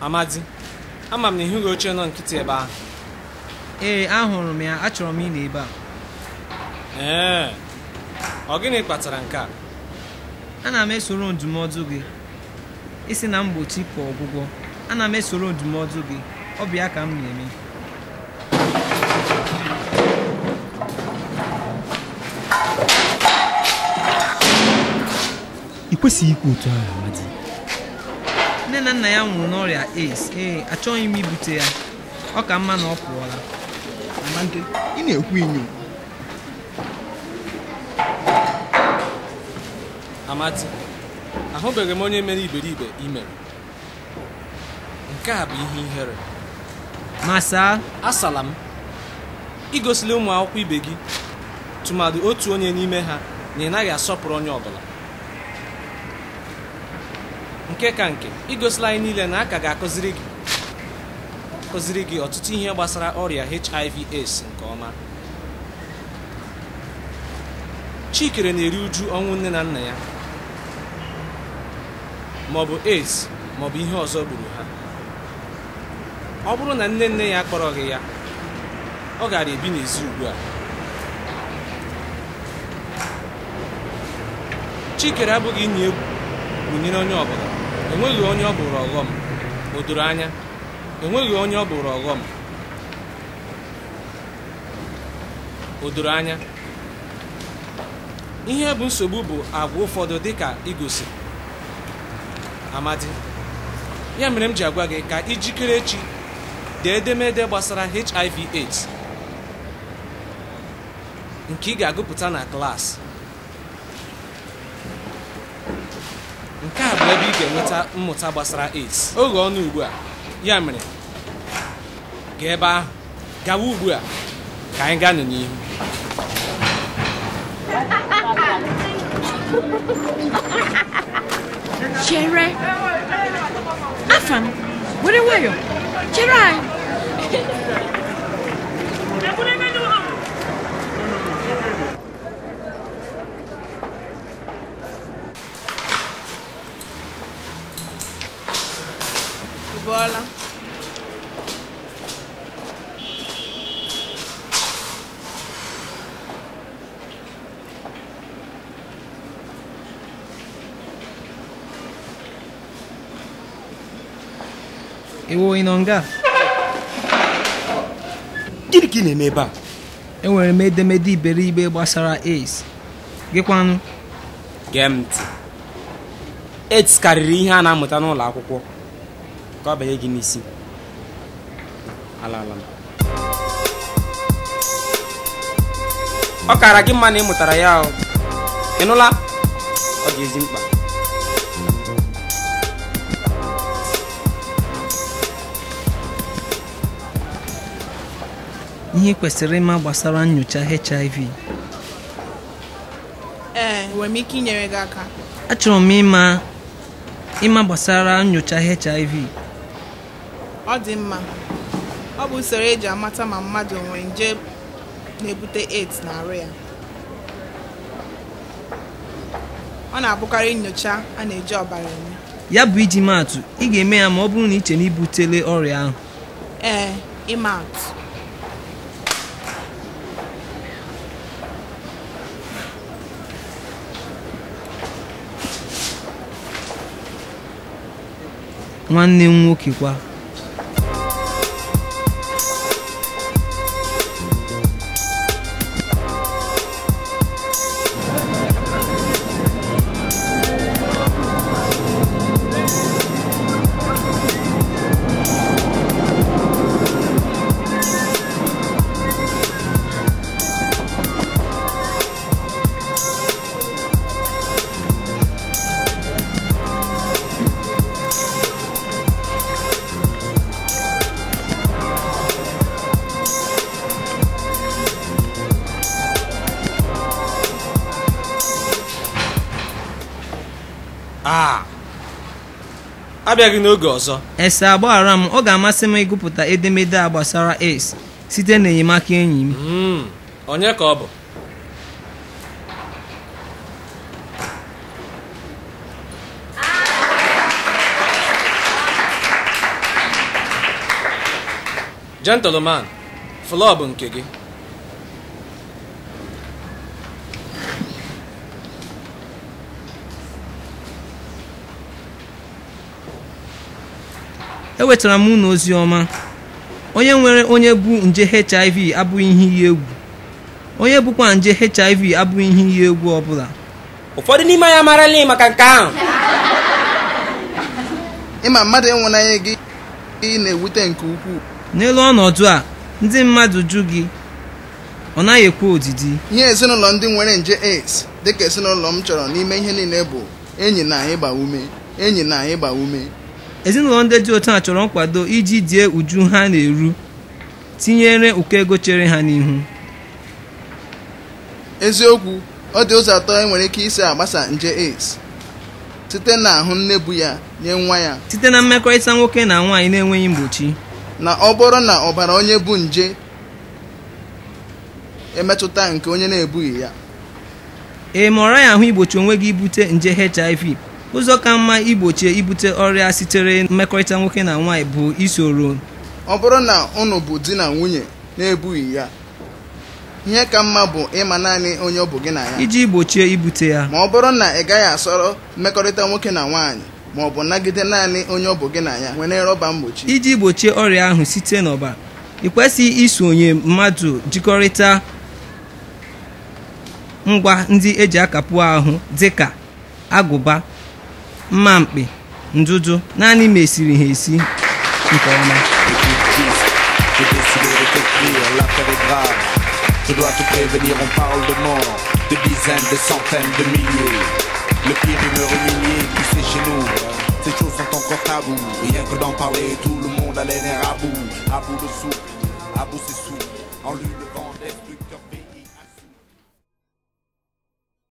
amadi ama m na ịhụghị oche nọ nkịtị ebe ahụ ee ahụrụ m ya achọrọ m ịnọ ebe a ee ọ gịnị kpatara nke a ana m esoro ndụmọdụ gị isi na mgbochi ka ọgwụgwọ ana m esoro ndụmọdụ gị ọ ka m na-eme ị kwesịghị ikwu otu ahụ amadi nne na nna ya nwụrụ n'ọrịa ace. ee achọghị m ibute ya ọ ka mma na ọ pụọla ị na-ekwu inyo Amati ahụbeghị m onye mere iberibe ime nke a bụ ihe ihere Masaa. asala m igosila ụmụ akwụkwọ ibe gị tụmadị otu onye n'ime ha na ị naghị asọpụrụ onye ọ nke ka nke igosila anyị niile na a ka ga-akụziri gị akụziri gị ọtụtụ ihe gbasara ọrịa HIV AIDS nke ọma Chikere na-eri uju ọnwụ nne na nna ya maọbụ AIDS maọbụ ihe ọzọ gburu ha ọ bụrụ na nne nne ya gị ya ọ gara ebi n'ezi ugbu a Chikere abụghị inyi egwu gwunyere onye ọbụla enweghị onye ọ bụrụ ọghọm o doro anya onye ọ bụrụ ọghọm o doro anya ihe bụ nsogbu bụ agwa ụfọdụ dịka igosi amadi ya mere m ji agwa gị ka ijikere echi dee edemede gbasara hiv aids nke ị ga-agụpụta na klaasị nke a bụ ebe ị ga-enweta mmụta gbasara AIDS oge ọnụ ugbu a ya mere gaa ebe ahụ gawa ugbu a ka anyị gaa n'ihu chere were nwayọ chere anyị Voilà. Ewo ị nọ nga? Gịnị ka ị na-eme ebe a? Enwere m edemede iberibe gbasara AIDS. Gịkwanụ? Gee m ntị. AIDS karịrị ihe a na-amụta n'ụlọ akwụkwọ. ka ọ gị n'isi ala ala ọ kara gị mma na ị mụtara ya ị nụla ọ dị ezi mkpa ihe kwesịrị ịma gbasara nyocha HIV ee nwere m ike inyere gị aka achọrọ m ịma ịma gbasara nyocha HIV ọ dị mma ọ bụ usoro eji amata ma mmadụ nwere nje na-ebute AIDS na-arụ ya ọ na-abụkarị nyocha a na-eji ọbara eme ya bụ iji maatụ ị ga-eme ya ma ọ bụrụ na iche na ibutele ọrịa ahụ ee ịma nwanne m nwoke kwa abịaghị n'oge ọzọ ese agbaghara m ọ ga-amasị m ịgụpụta edemede a gbasara ace site n'enyemaka enyi m hmm, onye ka ọ bụ gentleman flọ nke gị ewetara m unu ozi ọma onye nwere onye bụ nje hiv abụghị ihe iyi egwu onye bụkwa nje hiv abụghị ihe iyi egwu ọbụla ụfọdụ n'ime anyị amarala maka nke ahụ ịma mmadụ enwenanya gị ị na-ewute nke ukwuu n'elu ọnọdụ a ndị mmadụ jụ gị ọ naghị ekwe odidi ihe ezinụlọ ndị nwere nje AIDS dịka ezinụlọ m chọrọ n'ime ihe niile bụ enyi na ịgba ume enyi na ịgba ume ezinụlọ ndị dị otu a chọrọ nkwado iji die uju ha na-eru tinyere ụkọ ego chere ha n'ihu eziokwu ọ dị ụzọ atọ enwere ike isi agbasa nje AIDS site na ahụ nne bu ya nye nwa ya site na mmekọrịta nwoke na nwaanyị na-enweghị mgbochi na ọ bụrụ na ọbara onye bu nje emetụta nke onye na-ebughị ya ị maọra ya ahụ igbochi onwe gị ibute nje HIV ụzọ ka mma igbochi ibute ọrịa sitere mmekọrịta nwoke na nwaanyị bụ isoro ọ bụrụ na ụnụ bụ di na nwunye na-ebughị ya ihe ka mma bụ ịma naanị onye ọ bụ gị na ya iji gbochie ibute ya ma ọ bụrụ na ị gaghị asọrọ mmekọrịta nwoke na nwaanyị ma ọ bụ nagide naanị onye ọ bụ gị na ya nwere rọba mgbochi iji gbochie ọrịa ahụ site n'ọba ị kwesịghị isonye mmadụ jikọrịta ngwa ndị eji akapụ ahụ dịka agụba mma un ndudu naanị ma esiri ha esi est grave. Je dois te prévenir, on parle de mort, de dizaines, de centaines, de milliers. Le pire me humilié, qui c'est chez nous. Ces choses sont encore tabou. Rien que d'en parler, tout le monde a l'air à bout. À bout de sou, à bout c'est sous. En lui